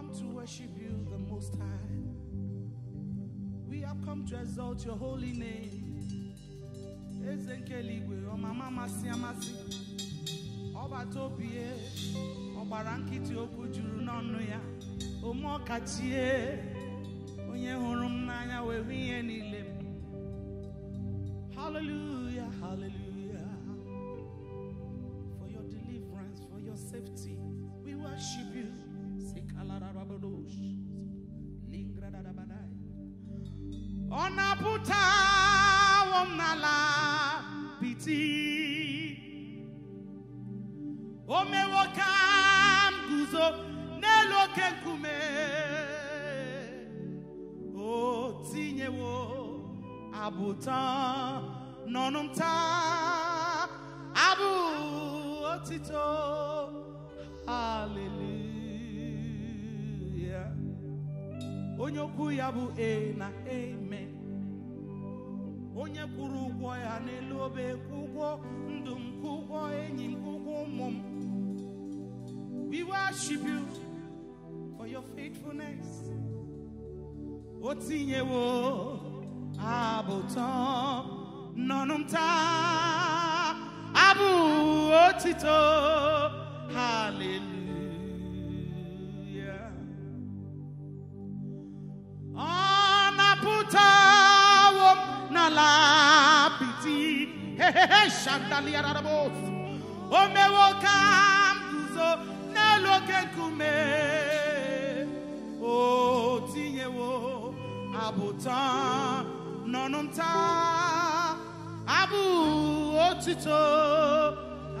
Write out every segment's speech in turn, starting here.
come to worship you, the Most High. We have come to exalt your holy name. Eze nke eluigwe ọmama amasị amasị ọbata obi ya e, ọgbara nkịtị okwu juru n'ọnụ ya ome ọkachie onye hụrụ m n'anya wee hụ ihe niile m abụta nọnụ m abụ otito haleluya onye okwu ya bụ e na eme onye kwuru ụgwọ ya n'elu obe kwụ ụgwọ ndụ m enyi m ụgwọ ụmụ m we worship you for your faithfulness o tinyewo abotan nonumta abu otito hallelujah onaputa wo nalapiti shandalia kume ọnụ nta abụ otito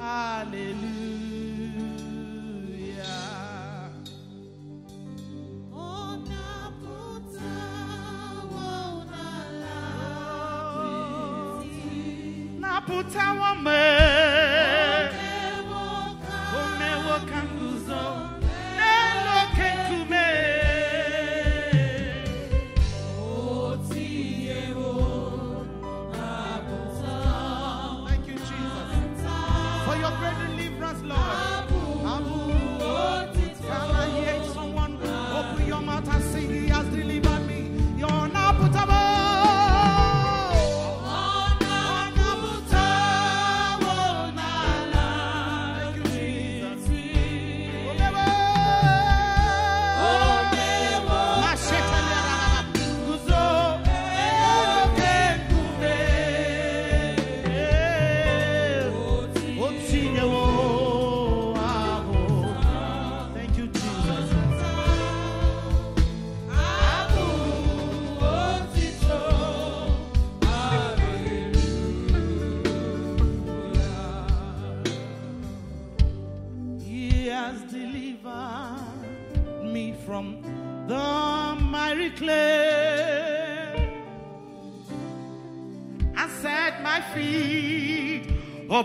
haleluya na puta man.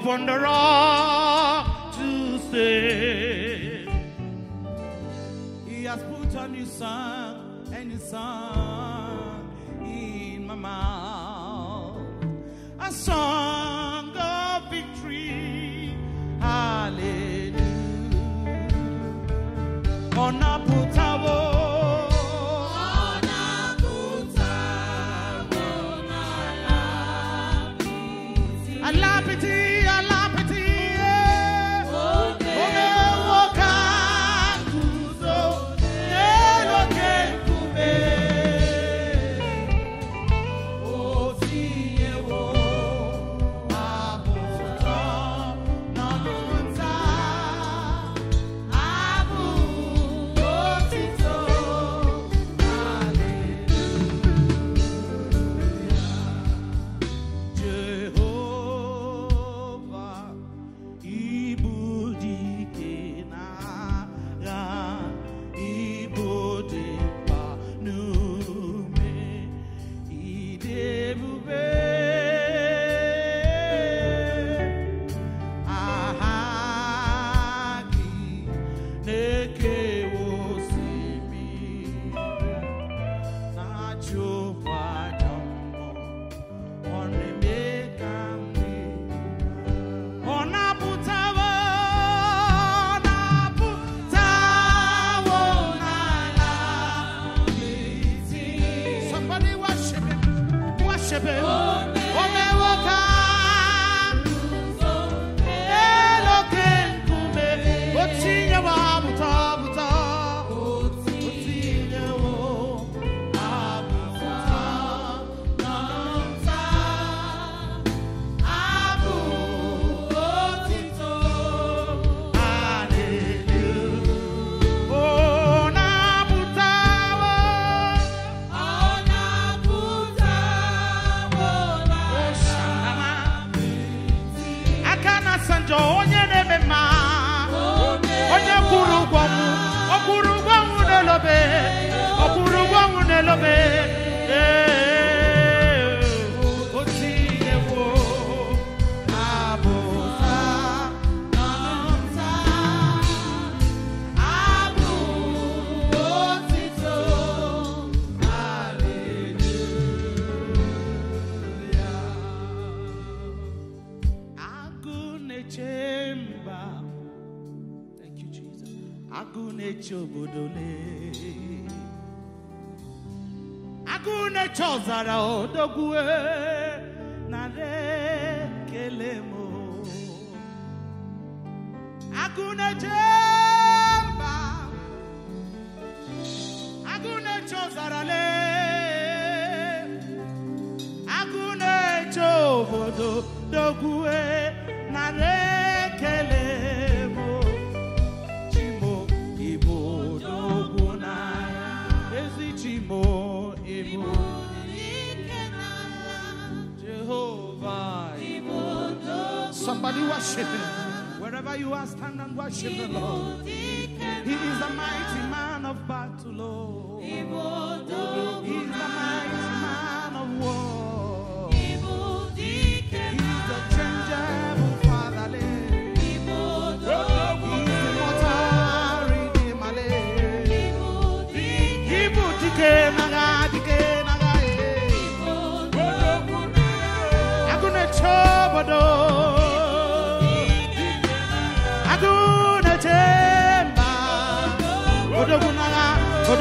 upon the rock. worship Him. Oh, man! oh, man! saber. odogwu narị ekele m agụ na-eche mba agụ na-eche ọzara na re. Somebody worship him. Wherever you are, stand and worship the Lord. He is a mighty man of battle, Lord. Oh. He is the mighty man of war. He is the changeable fatherland. I'm gonna trouble.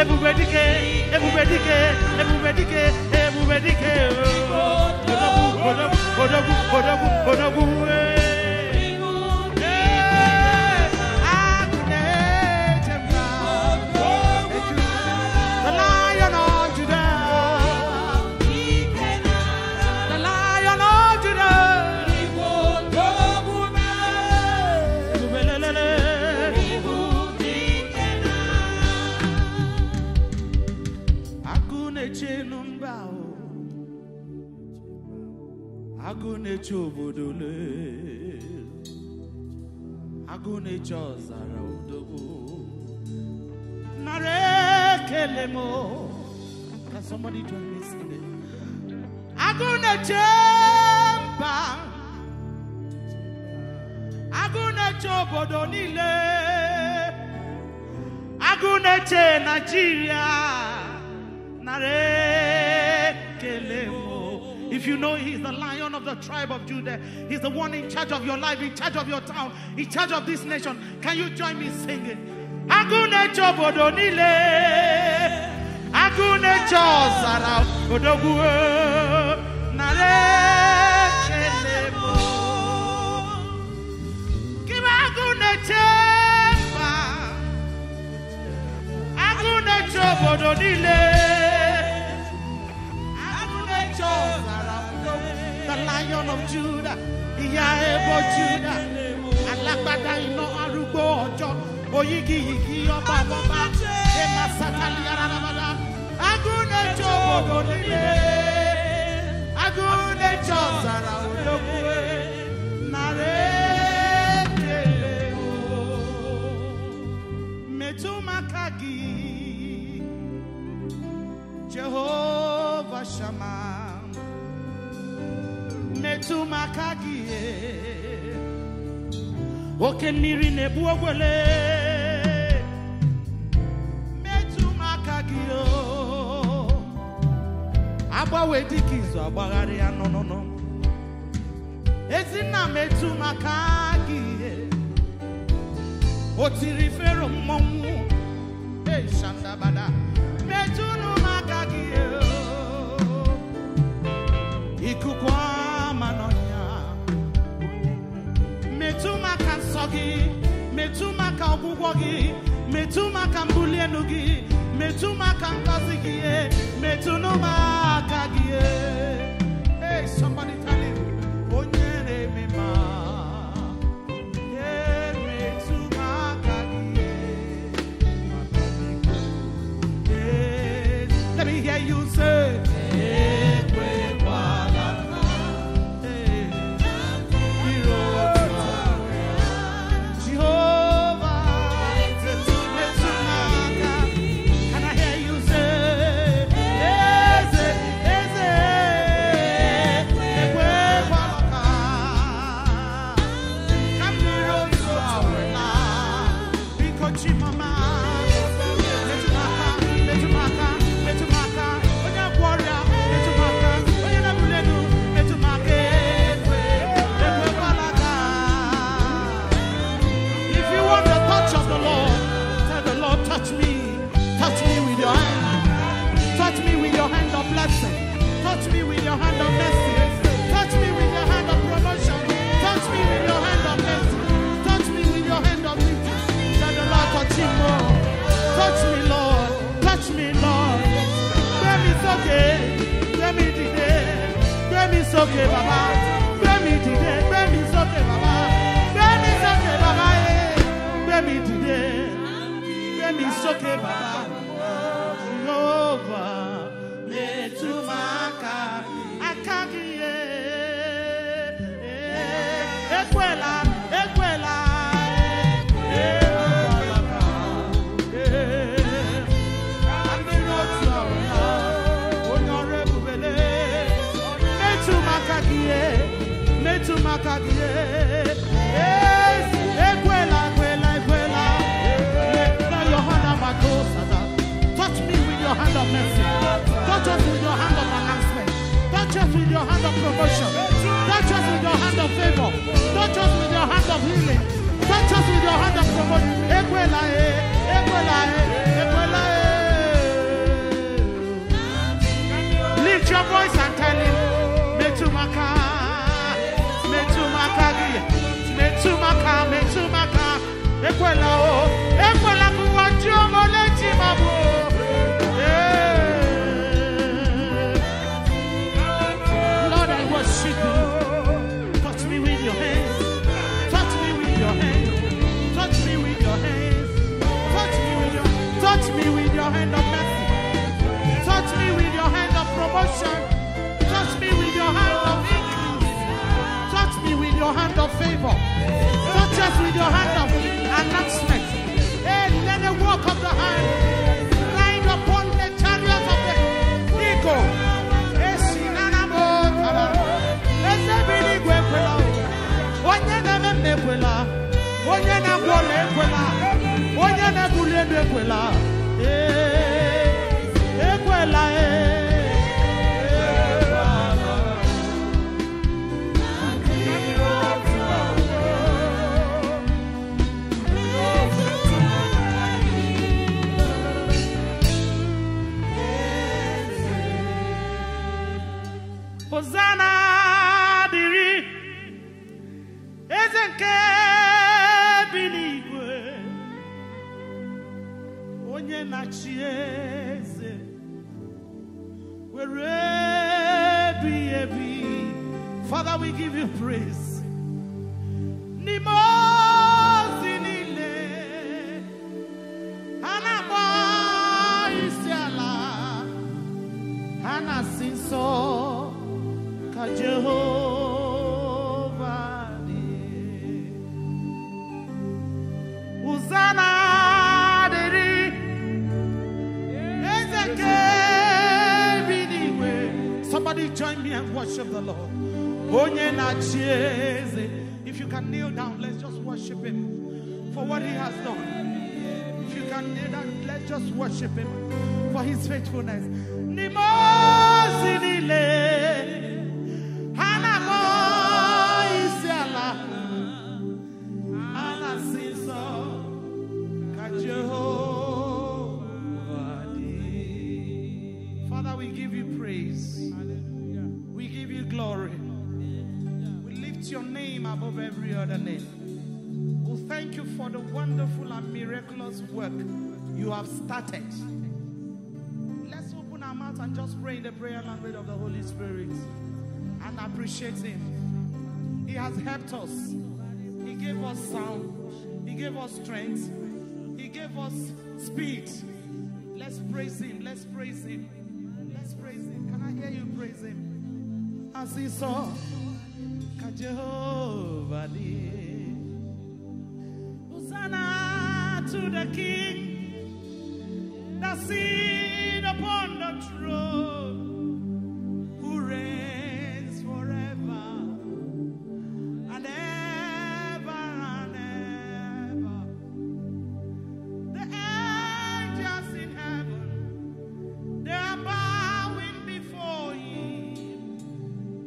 everybody care, everybody care, everybody care, everybody care. agụ na-eche obodo agụ ọzara odogwu nara ekele m Can somebody join me singing? agụ na-eche mba agụ obodo niile agu Naịjirịa nara ekele m if you know He's the lion of the tribe of Judah, He's the one in charge of your life, in charge of your town, in charge of this nation, can you join me singing? Agụnechọ obodo niile, agụnechọ ọzara odogwu nara Kịba agụneche mba, agụneche obodo Lion of Judah, ìyá ẹbọ Judah, alágbádá iná arúgbó ọjọ́, oyigi yìí ọba bọ́bá, ṣé máa sátálí arábàdá. Agúnlẹ̀jọ́ bòbò nílé, agúnlẹ̀jọ́ sàrà olókùnrin, nàrẹ́. Jehovah Shammah. metụ m oke mmiri na ebu ogwele metụ m agbanwe dịka izu agbagharị ya nọnụnụ ezinna metụ maka gị o tiri fero mmọnwụ eshandabada metụnụ m gị ikuku ọsọ gị metụ maka me tu metụ maka mbuli elu gị metụ maka ngọzi I'm bàbá mi. Jehovah, lè túmọ̀. just with your hand of promotion, not just with your hand of favor, not just with your hand of healing, not just with your hand of promotion. nne na chi eze be, be. Father, we give you praise. Nimo worship the Lord. If you can kneel down, let's just worship Him for what He has done. If you can kneel down, let's just worship Him for His faithfulness. above every other name. We thank you for the wonderful and miraculous work you have started. Let's open our mouth and just pray in the prayer language of the Holy Spirit and appreciate Him. He has helped us, He gave us sound, He gave us strength, He gave us speed. Let's praise Him, let's praise Him, let's praise Him. Can I hear you praise Him? As He saw. Jehovah dear. Hosanna to the King, that sits upon the throne, who reigns forever and ever and ever. The angels in heaven, they are bowing before him.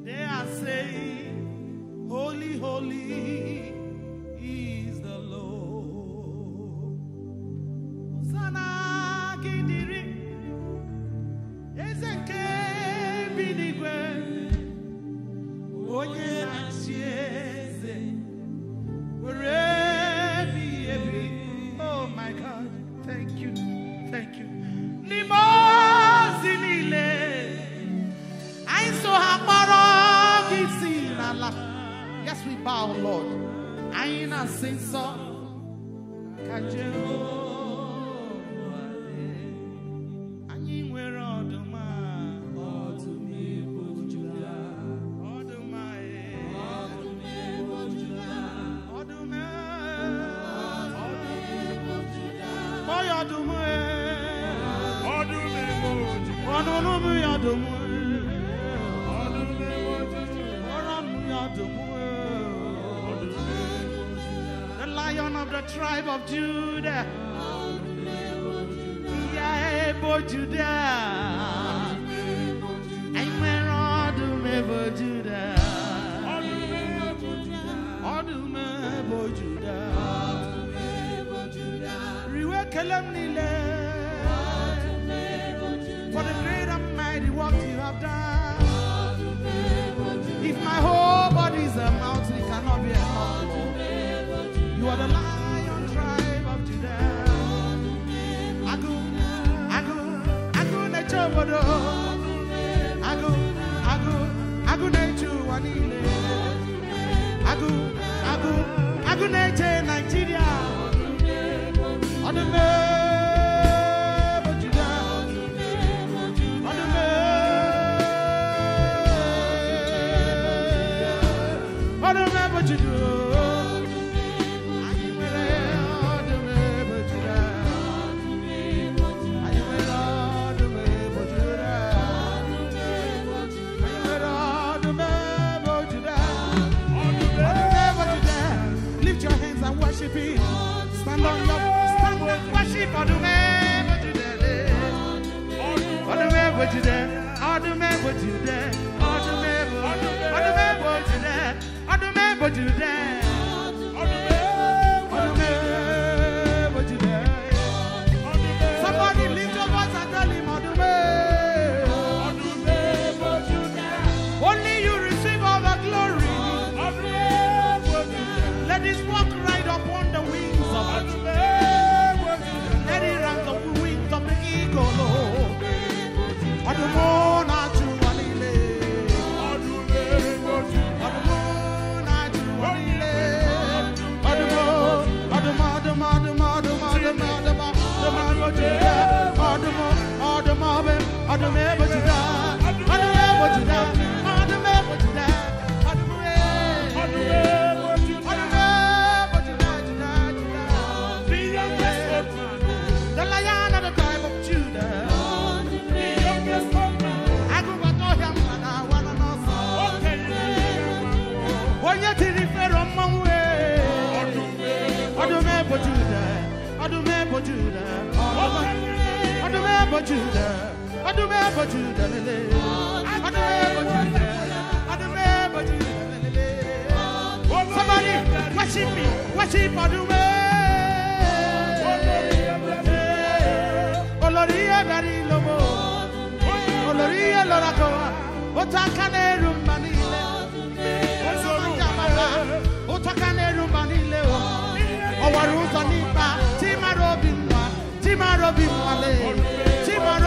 They are saying, holy is the Lord. The lion of the tribe of Judah. Judah. have done. If my whole body is a mountain, it cannot be a mountain. You are the lion tribe of Judah. Agun, agun, agun, echobodo. Agun, agun, agun, echu, wanile. Agun, agun, agun, echu. Somebody worship me, worship Adume. Oloria oh, bari lomo, Oloria lorako, oh, otakane oh, rumanile, ozorujamala, otakane rumanile o, owaruta nipa, timarobi nwa, timarobi nwale.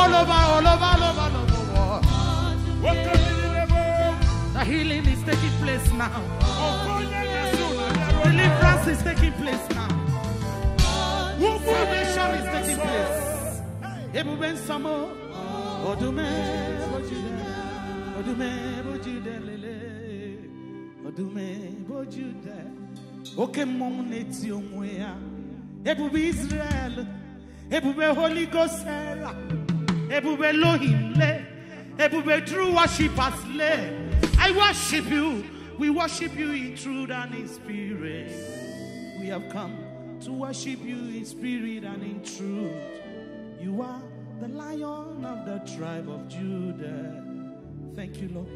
all over, all over, all over, all over the world. The healing is taking place now. Oh, Deliverance is taking place now. Salvation is taking place. Ebube nsọmọ ọdúnmẹ bójúdẹ ọdúnmẹ bójúdẹ lele ọdúnmẹ bójúdẹ oke mmọnwụ na-eti onwe ya ebube Israel ebube Holy Ghost ebube Elohim le, ebube true worshippers le. I worship you. We worship you in truth and in spirit. We have come to worship you in spirit and in truth. You are the lion of the tribe of Judah. Thank you, Lord.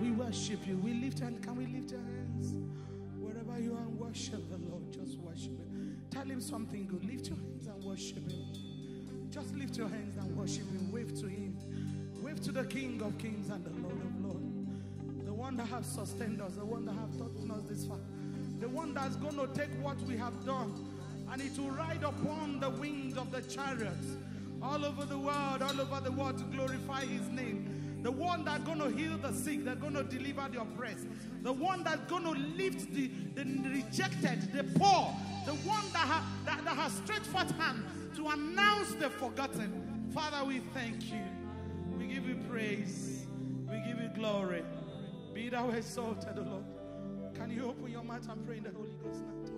We worship you. We lift and can we lift our hands wherever you are worship the Lord. Tell him something good. Lift your hands and worship him. Just lift your hands and worship him. Wave to him. Wave to the King of Kings and the Lord of Lords. The one that has sustained us, the one that has taught us this far, the one that's going to take what we have done and it will ride upon the wings of the chariots all over the world, all over the world to glorify his name the one that's going to heal the sick, that's going to deliver the oppressed, the one that's going to lift the, the rejected, the poor, the one that, ha, that, that has stretched forth hand to announce the forgotten. Father, we thank you. We give you praise. We give you glory. Be thou exalted, O Lord. Can you open your mouth and pray in the Holy Ghost now?